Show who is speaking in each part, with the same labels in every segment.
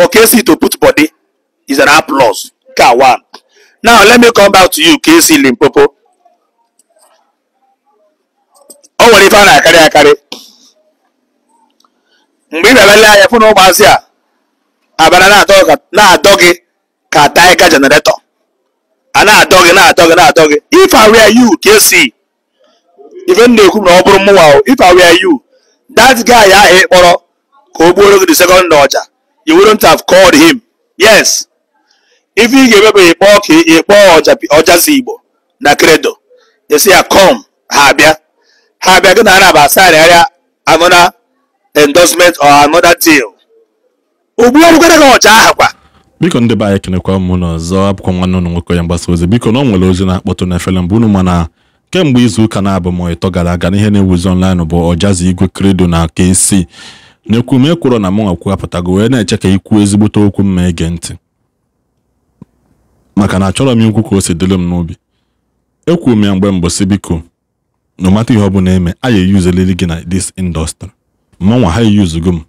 Speaker 1: for KC to put body is an applause. Ka one. Now let me come back to you, KC Limpopo. O nwere ife a na akari Mgbe ị na-ele anya fụ na ụmụazị a abara na-adọ gị ka taịka jeneretọ a na-adọ gị na gị if I were you KC na bụrụ if I were you that guy ahụ ị kpọrọ ka o the second you wouldn't have called him yes if you ga-emebeghị kpọọ ka ịkpọọ ọjazi igbo na credo esi ya ah, com ha abịa ha abịa gị na arab asagharịgharịa another endorsement or aha kwa
Speaker 2: biko ndị be anyị kenekwa mụ n'ọzọ abụkwa nwanne nwoke ya mgbasa ozi biko na ọ nwere ozi na-akpọtụ n'efere mbụ unu mana kemgbe izu ụka na-abụ m ịtọ gara aga n'ihe na-ewuzi online bụ ọjazi igwe kredo na ka esi nyekwume kwụrọ na mụnwa kwuwapụtago wee na-eche ka ikwu ezigbote okwu mma ege ntị maka na achọrọ m ikwu ka o si dịrị m n'obi ekwuo m ya mgbe mbọsị biko no mata ihe ọ bụla eme a ya eyuzeliri gị na dis indọstrị mmanwa ha eyuzugo m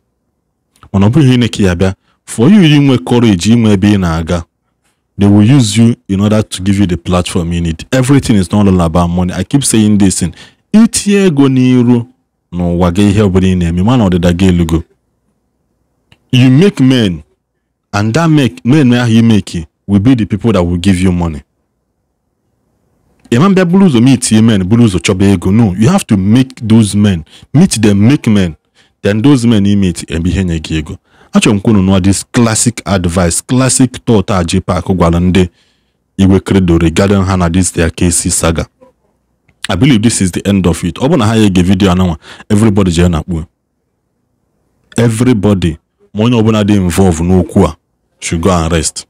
Speaker 2: mana ọ bụghị ine ka ya bịa for you inwe courage inwe ebe ị na-aga they will use you in order to give you the platform you need everything is not all about money i keep saying this in itinye ego n'iru n'ụwa gị ihe ọbụla ị na-eme mana ọdịda gị elugo you make men and that make men ahụ you make will be the people that will give you money ịma mbịa buru ụzọ meet men buru ụzọ chọba ego no you have to make those men meet them make men then those men you meet ebe ihe nye gị ego achọrọ m kwunu nụọ this classic advice classic thought a J-Pac gwara ndị Igwe Credo regarding ha na this their KC saga I believe this is the end of it. Ọ bụ ha ga-ege vidiyo ananwa everybody jee na-akpu everybody ma onye ọbụla dị involve n'okwu a should go and rest.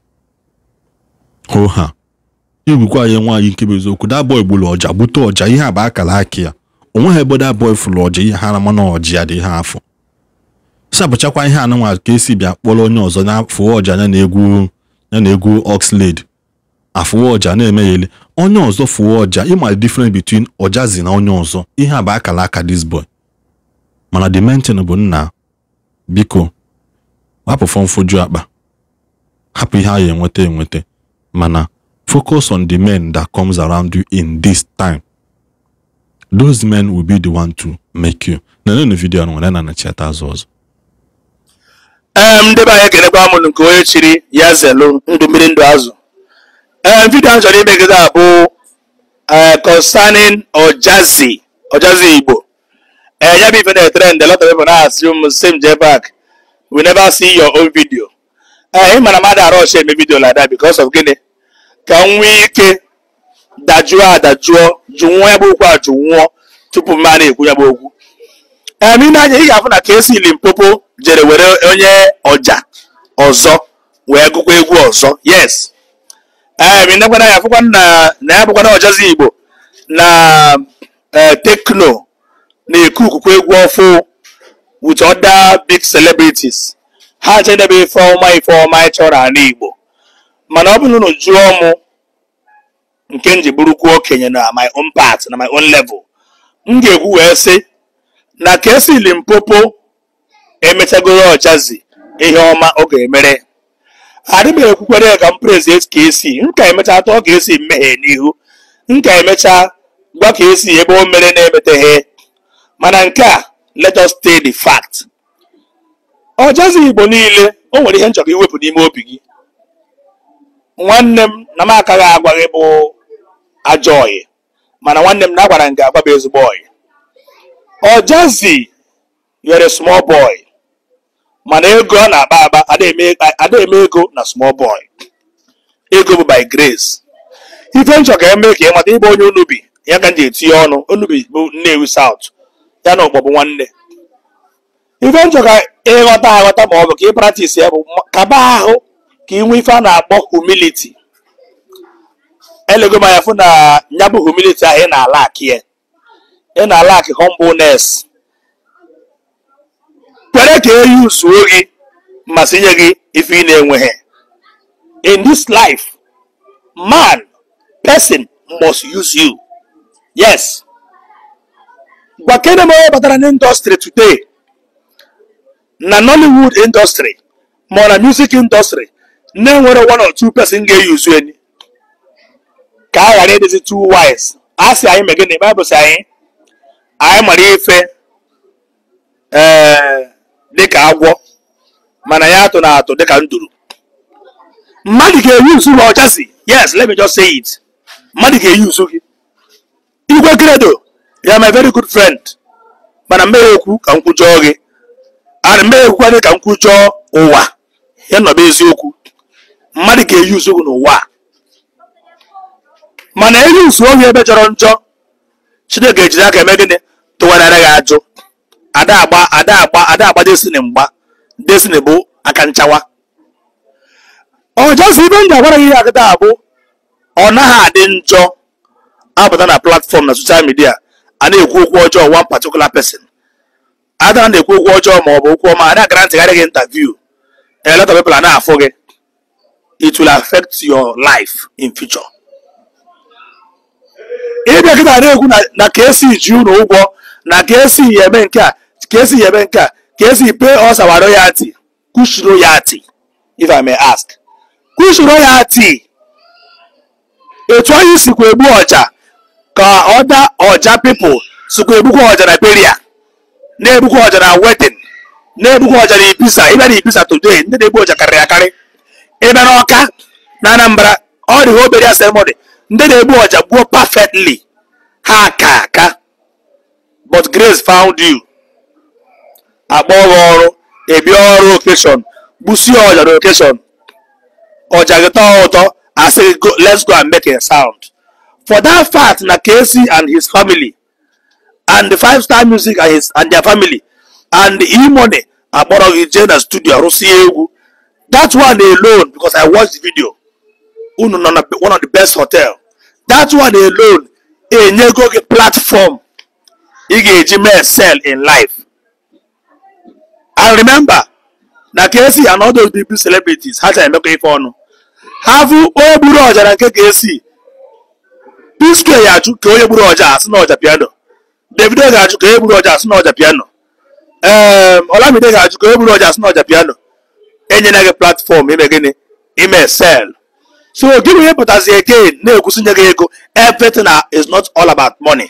Speaker 2: ho ha igwukwa ya nwaanyị nkebe eziokwu that boy gburu ọja gbute ọja ihe a bụ akara aka ya onweghị ebe that boy fụrụ ọja ihe ha na ọja ya dị afọ sapụchakwa ihe ananwa ka esi bia kpọrọ onye ọzọ na afọ ọja ya na egwu na egwu Oxlade afụwa ọja na-eme onye ọzọ fụwa ọja ịma the difference between ọjazi na onye ọzọ ihe a bụ akala aka this boy mana the main thing bụ nna biko hapụ fọmfoju akpa hapụ ihe a ya enweta enweta mana focus on the men that comes around you in this time those men will be the one to make you na nenu vidiyo nwere na nachata azụ ọzọ
Speaker 1: ndebe ndị anyị kelekwa nke onye chiri ya zelu ndụ mmiri ndụ azụ ee eh, vidiyo a chọrọ imegide abụ eh, concerning Ojazi Ojazi Igbo ee eh, ya bụ ife na-etrend lot of people na-asị m same je back we never see your own video ị mara mmadụ arọchi eme vidio like that because of gịnị ka m nwee ike dajuo adajuo jụnwụọ ya bụ okwu a jụnwụọ tupu mma na-ekwu ya bụ okwu ee ime anya ị ga-afụ na ka esi Limpopo jere were onye ọja ọzọ wee gụkwa egwu ọzọ yes ee eh, nekwana ya na na ya bụkwana igbo na tekno na-eku ukukwe egwu ọfụ with other big celebrities ha je edebe ife ọma ife ọma ịchọrọ igbo mana ọ bụrụ na jụọ nke m okenye na my own part na my own level m ga-ekwu wee sị na ka esi Limpopo emechagoro ọjazi ihe ọma ọ ga-emere adị m ekwukwere ka m prezi ka esi m ka emechaa atọ ka esi mmehie n'ihu m ka emechaa gwa ka esi ebe o mere na-emeteghe mana nke a let us stay the fact ọjazi igbo niile o nwere ihe nchọrọ iwepụ n'ime obi gị nwanne m na m akaghị agwa gị bụ Ajọyị, mana nwanne m na agwara m gị agwa bụ ezigbo oyi small boy mana ego ọ na-akpa akpa ada eme ego na small boy ego bụ by grace ife nchọ ka eme ka ịmata ịbụ onye onubi ya ka ji etinye ọnụ onubi bụ nnewi south ya na ụkpọbụ nwanne ife nchọ ka ịghọta aghọta ma ọ bụ ka ị pratis ya bụ kaba ahụ ka ị nwe ife a na-akpọ humility elego m fụ na nyabụ bụ humility ahụ ị na-ala akị ya ị na-ala akị humbleness ka eyi usuo gị masịnyeghị nye gị ife ị na-enweghị in this life man person must use you yes gwa kene m batara na today na nollywood indọstrị ma ọ na music ịndọstrị na-enwere one or two person ga-eyuzu eni ka a ghara ịdịzi two wise a sị anyị megịnị baịbụl sị anyị anyị mara ife ee eh, dịka agwọ mana ya atụ na atụ dịka nduru mmadụ ga-eyi usu ma ọcha yes let me just say it mmadụ ga-eyi usu gị igwe gredo ya my very good friend mana mmeghe okwu ka m kwujọọ gị ara mmeghe okwu ka m kwujọọ ụwa ya nọba eziokwu mmadụ ga-eyi usu gị n'ụwa mana eyi usu ohi ebe jọrọ njọ chineke ejiri aka eme gịnị tụwarara gị ajụ ada agba ada agba ada agba destiny mgba destiny bụ aka nchawa ọjọzi ibe m ji agwara gị ihe akịta bụ ọ naghị adị njọ abata na platfọm na soshal midia a na-ekwu okwu ọjọọ one particular person adara na-ekwu okwu ọjọọ ma ọ bụ okwu ọma a na-agara ntịgharị gị interview a of na-afụ gị it will affect your life in future ịbịa kịta na-ekwu na ka esi ji ụlọ ụgwọ na ka esi ya eme nke a ka esi yebe nke a ka esi pe ọsawa our royalty kush royalty if i may ask kush royalty etu anyị sikwa egbu ọja ka ọda ọja pipụl sikwa egbukwa ọja na beria na-egbukwa ọja na wetin na-egbukwa ọja na ibisa ịbịa na ibisa today ndị na-egbu ọja karịrị akarị ịbịa na ọka na anambra ọ dịghị obere ya ceremony ndị na-egbu ọja gbuo perfectly ha aka aka but grace found you akpọ gị ọrụ ebia ọrụ okeshọn gbusie ọja na okeshọn ọja gị tọọ ụtọ asị gị let's go and make a sound for that fact na Casey and his family and the five star music and, his, and their family and the e-money akpọrọ gị jee na studio rụsie egwu that one alone because i watched the video unu nọ na one of the best hotel that one alone enyego gị platform ị ga-eji mee sell in life i remember na Kcee and all those celebrities ha chara emekọ ife ọnụ ha fụ onye gburu ọja na nke Kcee P-Square ya achụ ka onye gburu ọja asị na ọja piano Davido ga achụ ka onye gburu ọja asị na ọja piano ee Olamide ga achụ ka onye gburu ọja asị na ọja piano enyela gị platform ime gịnị ime sel so gịnị ihe pụtazi again na-ekwusi nye gị ego everything is not all about money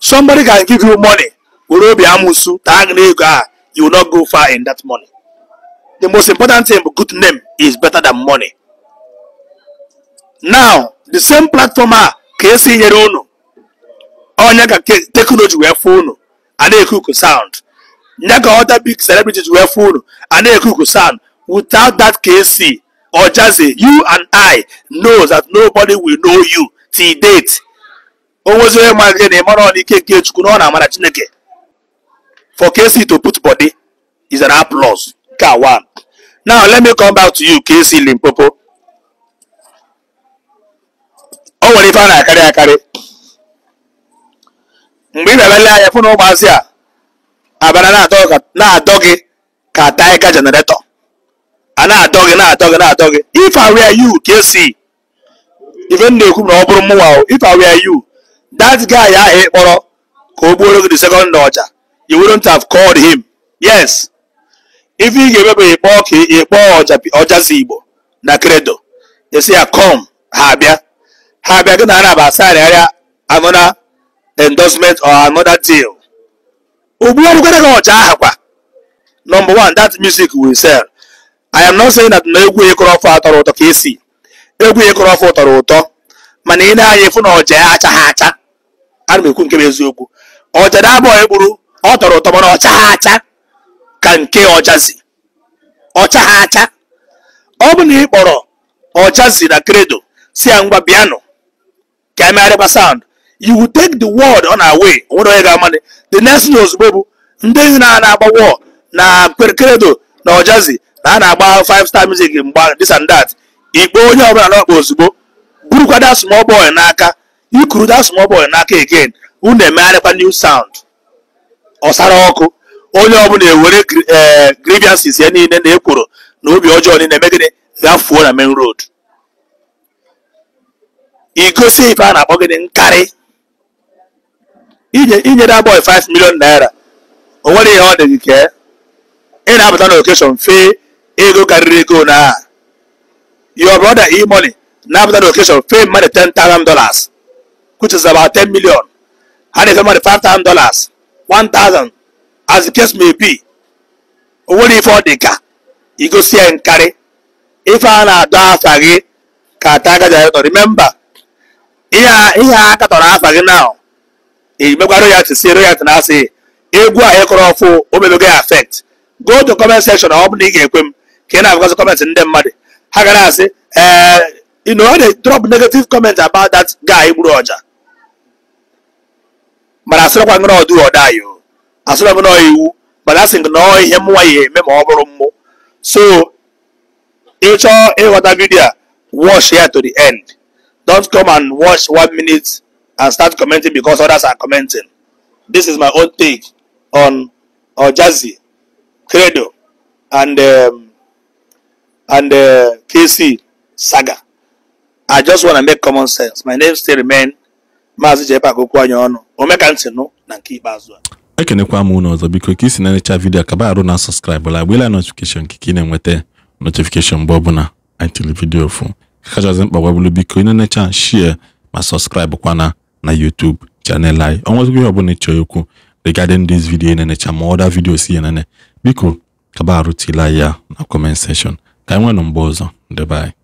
Speaker 1: somebody can give you money were obi amụsụ taa gị na ego you will not go far in that money. The most important thing, good name is better than money. Now, the same platform a ah, ka esi nyere unu onye ka teknọji wee fụ unu a na-ekuku sound nye other big celebrities wee phone, and a na-ekuku sound without that KC or Jazzy, you and I know that nobody will know you till date. O nwezie onye ma gị na ịmara ọnụ ike nke Chukwu na ọ na-amara Chineke for KC to put body is an applause. Car one. Now let me come back to you, KC Limpopo. Ọ nwere ife a na-akarị akarị. Mgbe ị na-ele anya fụ na ụmụazị a abara na-adọ gị ka taịka jeneretọ. A na-adọ na-adọ gị na-adọ gị. If I were you, KC. Ife m na na ọ bụrụ mụnwa o, if I were you, that guy ahụ ị kpọrọ ka o gbuoro gị the second ọja. you wouldn't have called him yes if you ga-emebeghị kpọọ ka ịkpọọ ọjazi igbo na credo esi ya com ha bịa ha bịa gị na ana ba asigharịgharịa another endorsement or another deal ugbu ọrụgara gị ọcha aha kwa number one that music will sell i am not saying that na egwu ịkọrọ ọfọ atọrọ ụtọ ka esi egwu ịkọrọ ọfọ tọrọ ụtọ mana ị na-anya efu na m ekwu nke m eziokwu ọ tọrọ ụtọ mana ọcha ha acha ka nke ọjazi ọcha ha acha ọ bụ na ị kpọrọ ọjazi na kredo si ya ngwa bịanụ ka emegharịba sound you will take the word on our way onwere onye ga-amanị the next thing ozugbo bụ ndị na-agba wọl na kredo na ọjazi na a na-agba five star music mgba this and that ikpe onye ọbụla n'ọkpa ozugbo burukwa that small boy n'aka ikuru that small boy n'aka again unu emegharịkwa new sound ọsara ọkụ onye ọbụla ewere e, grievances ya niile na ekworo na obi ọjọọ niile megide gafuo na main road igosi ife a na-akpọ gịnị nkarị inyere abụọ 5 million naira o nwere ihe ọ dị gị kee ị na-abata na okeshọn fee ego karịrị ego na aha brother e-money na-abata na okeshọn fee mmadụ 10,000 dollars which is about 10 million ha na-efe mmadụ 5,000 dollars 1000 as the case may be o nwere ife ọ dị ka igosi ya nkarị ife a na-adọ afa gị ka ata aka ji remember ihe a katọrọ afa gị na emekwara ya tisi royalty na asị egwu e a ịkọrọ ọfụ omebego ya affect go to comment section ọ bụ na ị ga-ekwe m ka ị na-abụgasị comment ndị mmadụ ha gara asị ee eh, you know, they drop negative comment about that guy gburu ọja mana asịrịkwa gị na ọdụ ọda ayọ asịrị m na ọ iwu mana asị gị na ọ ihe mụnwa ya eme ma ọ bụrụ mmụ so ịchọọ ịghọta vidio a watch ya to the end don't come and watch one minute and start commenting because others are commenting this is my own take on Ojazi Credo and um, and uh, KC Saga I just want to make common sense my name still remain Maazị Jekpa Agokwuanyonu omekantị nụ na nke ikpeazụ a
Speaker 2: ekenekwa m ụlọ ọzọ biko ka isi na-enecha vidiyo kaba arụ na sọskraịbụ la gbela notifikeshọn ka ị na-enweta notifikeshọn mgbe ọbụla anyị tiri fụ kachasị mkpa gbabụrụ biko ị na-enecha shie ma sọskraịbụ kwana na YouTube chanel anyị ọnwezigbo ihe ọbụla ịchọ okwu regarding this video ị na-enecha ma ọda vidiyo si ya biko kaba arụ tila ya na kọment sekshọn ka anyị nwee mgbe ọzọ ndebe anyị